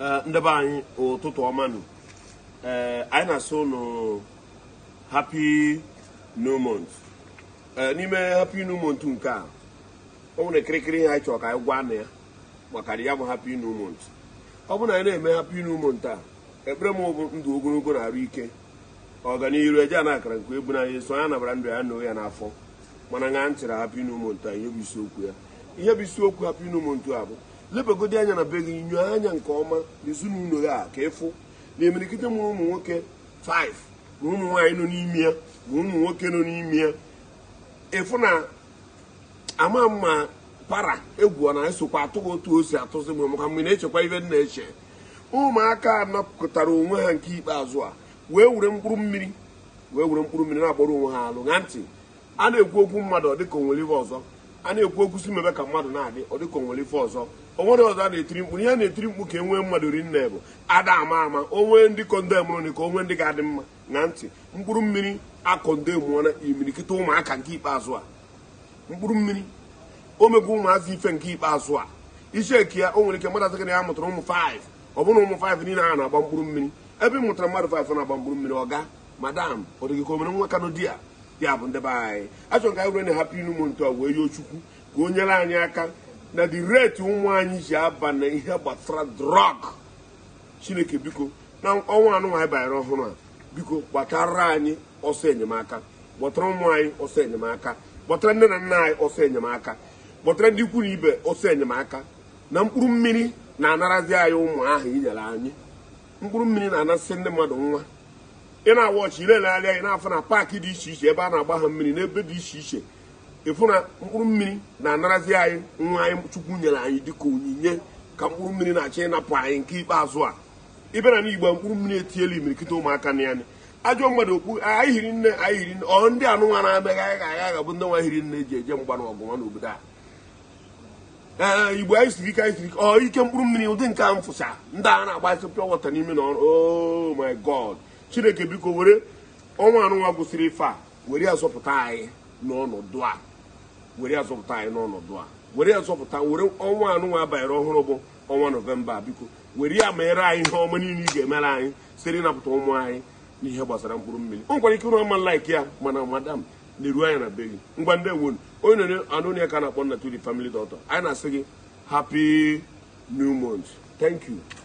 Eh, ndebe anyị ụtụtụ ọma ee eh, anyị na-asụ ụnụ happy new eh, n'ime hapi new nke a ọ nwere kirikiri ihe anyị chọrọ ka anyị gwa na ya maka na ya bụ hapi new ọ bụrụ na anyị na-eme hapi new a ekpere m bụ ndụ ogologo na-arụ ike ọganihu eje a na akara nke ebu na ya so ya nabara ndụ ya na ya n'afọ mana na ntị na hapi new a ihe bụ isiokwu ya ihe bụ isiokwu hapi new a bụ lebagodi anya na be gị nyuo anya nke ọma n'ezinụlọ ya a ka ịfụ na imirikite mụrụ ụmụ nwoke 5 na ụmụ nwaanyị nọ n'ime ya na ụmụ nwoke nọ n'ime ya ịfụ na ama mma para egwu na esokwa atụ otu o si atụzi m maka mgbe na-echekwa ibe na-eche ụmụaka anapụtara onwe ha nke ikpeazụ a wee were mkpụrụ mmiri wee were mkpụrụ mmiri na-agbara onwe ha alụ na ntị a na-ekwu okwu mmadụ dịka onwere ihe ọzọ a na-ekwu okwusi mebe ka mmadụ na-adị ọ dịka onwere ife ọzọ onwere ọzọ a na-etiri mkpu ihe na-etiri mkpu ka e nwee mmadụ ri bụ ada ama ama onwe ndị kondemụrụ ka onwe ndị ga-adị mma na ntị mkpụrụ mmiri akọndemụọna imirikịta ụmụaka nke ikpeazụ a mkpụrụ mmiri o ụmụazị ife nke ikpeazụ a isi eke ya o nwere ike mmadụ sekere ya mụtara ụmụ 5 ọ bụrụ ụmụ 5 niile a na-agba mkpụrụ mmiri ebe ị mụtara mmadụ 5 na-agba mkpụrụ mmiri ọ ga madam ọ ka o nwa di ya bụ ndị be anyị achọrọ ka anyị were na hapụ inu m ntọ wee yoo chukwu ka o nyere anyị aka na dị reti ụmụ anyị ji aba na ihe gbasara drọg chineke biko na ọnwa anụnwa anyị banyere ọhụrụ a biko gbatara anyị ọsọ enyemaka gbọtara ụmụ anyị ọsọ enyemaka gbọtara nne na nna anyị ọsọ enyemaka gbọtara ndị ikwu na ibe ọsọ enyemaka na mkpụrụ mmiri na-anarazi anyị ụmụ ahụ inyere anyị mkpụrụ mmiri na-anasị ndị mmadụ nwa ị na agba ile na anya na-afụ na paakị dị iche iche ebe a na-agba ha mmiri n'ebe dị iche iche ịfụ na mkpụrụ mmiri na-anarazi anyị nwa anyị chukwu nyere anyị dịka onyinye ka mkpụrụ mmiri na-achọ ịnapụ anyị nke ikpeazụ a ịbịara n'igbo mkpụrụ mmiri etiela imirikịta ụmụaka na ya ajọ mmadụ okpu anyị hiri nne anyị hiri nne ọ ndị anụnwa na-ameghị anyị ga-aga ga ndị nwa hiri nne ji eje mgba na ọgụ obodo n'obodo a ee igbo anyị siri ike anyị siri ike ọ ike mkpụrụ mmiri ụdị nke a mfụsa ndị a na-agba asị wọta n'ime na ọrụ oh my god chineke biko were ọnwa anụnwa gwụsịrị ife a were ya zọpụta anyị n'ọnọdụ a were ya zọpụta anyị n'ọnọdụ a were ya zọpụta were ọnwa anụnwa banyere ọhụrụ bụ ọnwa nọvemba biko were ya meere anyị ihe ọma niile ị ga-emere anyị site ịnapụta ụmụ anyị n'ihe gbasara mkpụrụ mmiri o nkwara ike ụrụ ọma laik ya mana madam na-eru anya na be gị ngwa ndị nwonu onye nere anụnya ka na-akpọ na tuli family dọtọ anyị na-asị gị hapi new month thank you